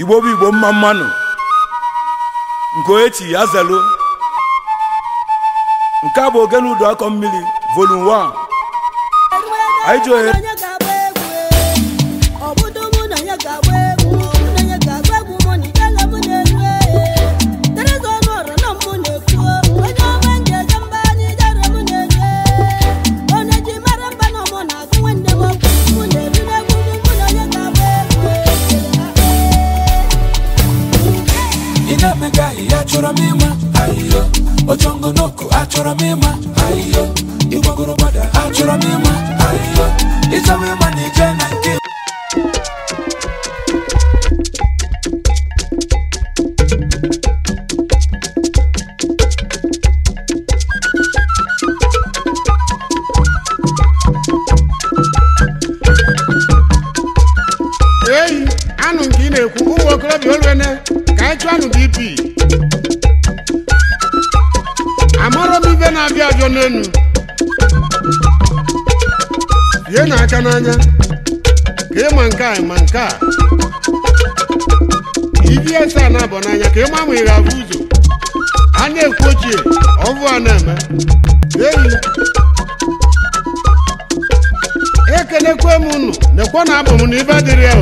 igbo bụ igbo mma mmanụ nke oechi ya zelu nke a bụ ụdọ akọ mmiri vol 1 anyị ji ohere Chamega achọrọ m ịma n'oko achọrọ m ịma achọrọ m ịma ịchọwa ịma na ije na nke Hey, anụ nke ị na-ekwu ụmụ okorobịa olwene echuanụ dp amara m ibe na-abịa abịa n'enu ihe na-aka n'anya ka ịma nke a ma nke a ibs e a na n'anya ka ịma ma ị ga-abụ ụzọ a na-ekwu ochie ọvụ a na-eme enyi ekelekwe m unu nekwa na abụ m na ibe dịrị ya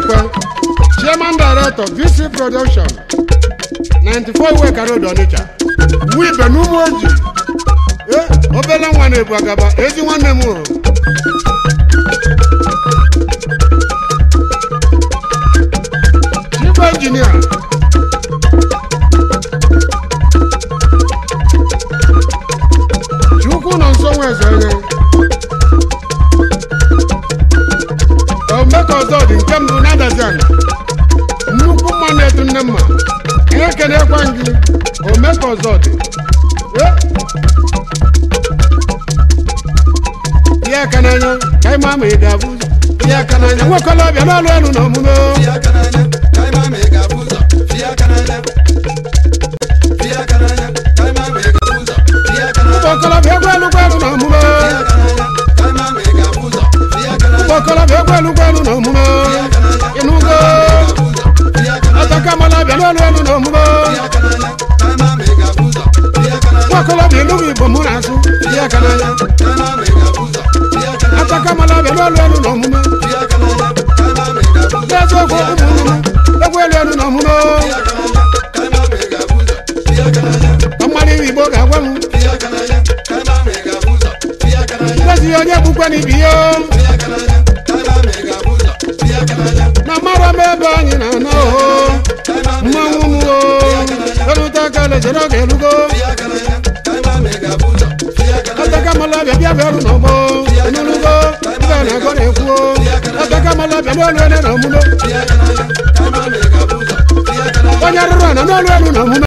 Ekwe, Chairman Director VC Production 94 Iweka Road Onitsha Wibe n'ụmụ oji eh nwa na-ebu agaba ezi nwanne mmanụ nnukwu mmanụ etu nne mma na-ekelekwa gị ome ka ọzọ dị aka n'anya ka ịma ma ị ga-abụ ya aka n'anya ọbịa n'ọlụ elu na omume mala bẹ gbẹlu gbẹlu nọ mu ma inu go ataka mala bẹ lọlu ẹlu nọ mu ma wakọlọ bẹ lumi bomu na su ataka mala bẹ lọlu ẹlu nọ mu ma lẹsọ ko umu nu lẹgbẹ lu ẹlu nọ mu ma ọmọdé yìnbó kà wẹmu lẹsí ọjọ púpẹ nana o mmanwụ m o erute aka lejere ọ ga-erugo atakamala bịa bịa bịa n'ọgbọ enurugo ibe na-agọ na-ekwuo atakamala bịa n'olu ene na omume onye rụrụ ana n'olu elu na omume